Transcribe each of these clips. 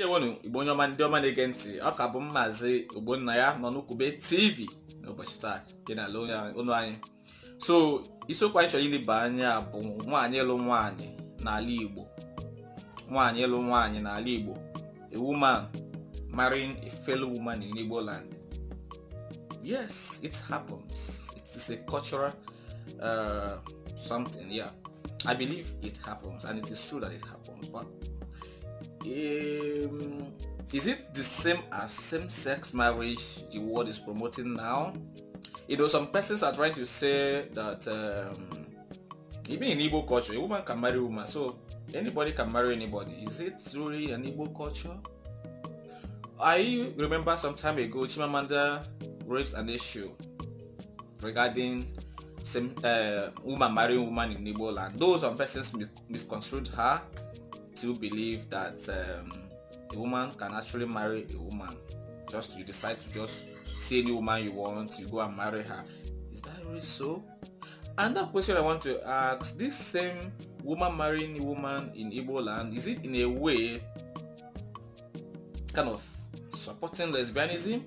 ndewonu igbo onye ọma ndị ọma na-ege ntị ọ ka bụ maazị ogbonna ya nọ n'ukwube tv n'ụbọchị taa dị n'ala ụlọ anyị so isiokwu anyị chọrọ ileba anya bụ nwaanyị ịlụ nwaanyị n'ala igbo nwaanyị ịlụ nwaanyị n'ala igbo a woman marrying a fellow woman in igbo land yes it happens it is a cultural uh, something yeah i believe it happens and it is true that it happens but Um, is it the same as same-sex marriage the world is promoting now? You know, some persons are trying to say that um, even in Igbo culture, a woman can marry a woman, so anybody can marry anybody. Is it truly an Igbo culture? I remember some time ago, Chimamanda raised an issue regarding same uh, woman marrying woman in Igbo land. Those some persons misconstrued her still believe that um, a woman can actually marry a woman. Just you decide to just see any woman you want, you go and marry her. Is that really so? Another question I want to ask this same woman marrying a woman in Igbo land, is it in a way kind of supporting lesbianism?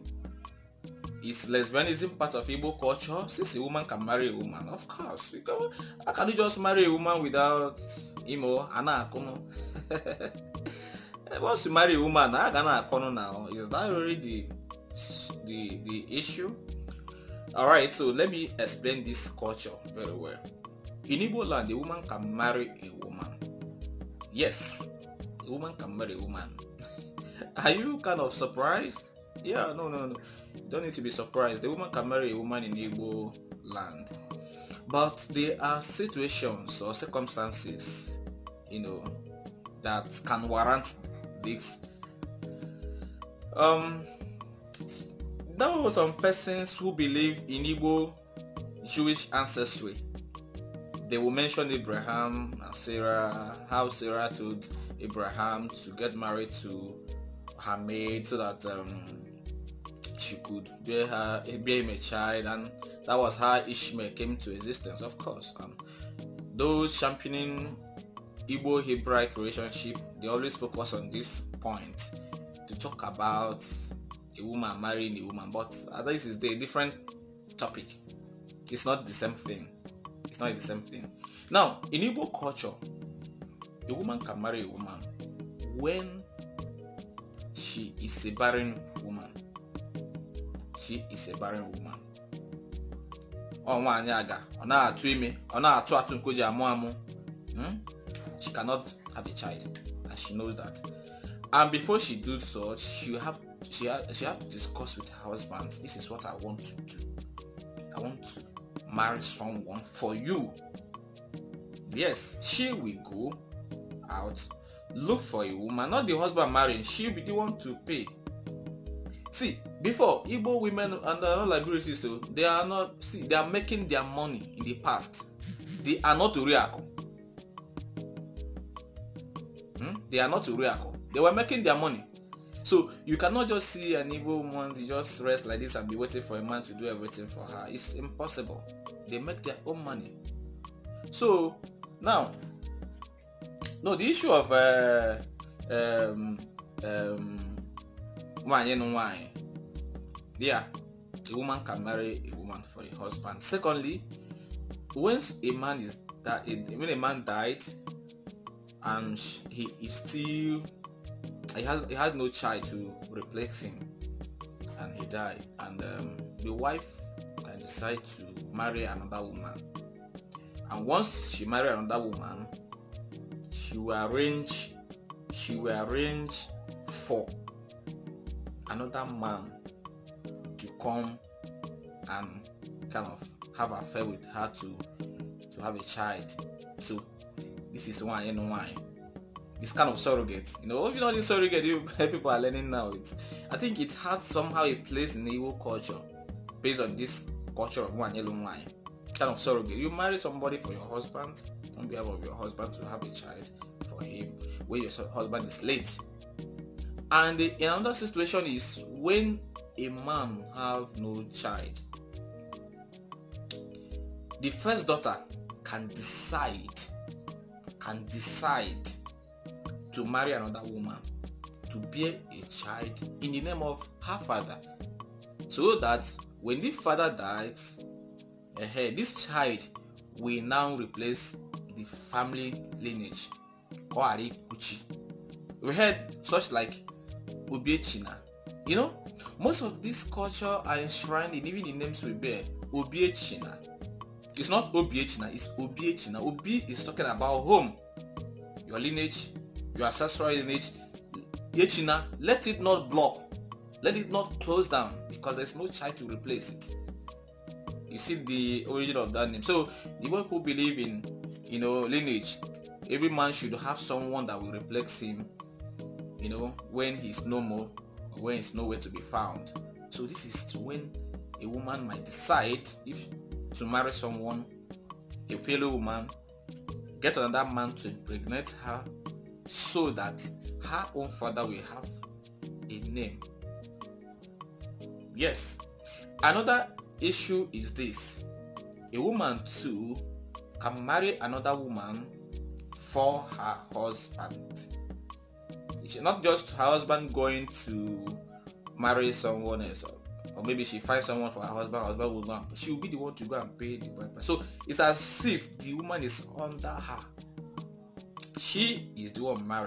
Is lesbianism part of Igbo culture? Since a woman can marry a woman, of course. You can, how can you just marry a woman without Imo, Anakuno? Once you marry a woman, I gonna corner now. Is that really the the the issue? All right, so let me explain this culture very well. In Igbo land, a woman can marry a woman. Yes, a woman can marry a woman. Are you kind of surprised? Yeah, no, no, no. don't need to be surprised. A woman can marry a woman in Igbo land. But there are situations or circumstances, you know, that can warrant this. Um, there were some persons who believe in Igbo Jewish ancestry. They will mention Abraham and Sarah, how Sarah told Abraham to get married to her maid so that um, she could bear, her, bear him a child, and that was how Ishmael came to existence, of course. those championing Igbo Hebraic relationship, they always focus on this point to talk about a woman marrying a woman, but this is a different topic. It's not the same thing. It's not the same thing. Now, in Igbo culture, a woman can marry a woman when she is a barren woman. She is a barren woman. Ọ nwaanyị aga, ọ na-atụ ime, ọ na-atụ atụ amụ amụ. Hmm? cannot have a child, and she knows that. And before she do so, she have she have, she have to discuss with her husband. This is what I want to do. I want to marry someone for you. Yes, she will go out, look for a woman, not the husband marrying. She will be the one to pay. See, before Igbo women and other Liberia they are not see they are making their money in the past. They are not real. Hmm? They are not Uriako. They were making their money. So you cannot just see an evil woman just rest like this and be waiting for a man to do everything for her. It's impossible. They make their own money. So now, no, the issue of uh, wine and wine. Yeah, a woman can marry a woman for a husband. Secondly, once a man is that when a man died, and he is still he has he had no child to replace him and he died and um, the wife can decide to marry another woman and once she married another woman she will arrange she will arrange for another man to come and kind of have affair with her to to have a child so this is one and one. It's kind of surrogate, you know. You know, this surrogate you, people are learning now. It's, I think it has somehow a place in Igbo culture based on this culture of one yellow wine. Kind of surrogate. You marry somebody for your husband on behalf of your husband to have a child for him when your husband is late. And the, another situation is when a man have no child, the first daughter can decide and decide to marry another woman to bear a child in the name of her father so that when the father dies uh, this child will now replace the family lineage or We heard such like Obiechina. You know, most of this culture are enshrined in even the names we bear, china it's not OBH it's OBH now. OB is talking about home, your lineage, your ancestral lineage. Yechina, let it not block, let it not close down because there's no child to replace it. You see the origin of that name. So the people believe in you know lineage. Every man should have someone that will replace him, you know, when he's no more, when he's nowhere to be found. So this is when a woman might decide if to marry someone, a fellow woman, get another man to impregnate her so that her own father will have a name. Yes, another issue is this a woman too can marry another woman for her husband. It's not just her husband going to marry someone else or maybe she finds someone for her husband, her husband will go and she'll be the one to go and pay the bride price. So it's as if the woman is under her. She is the one married.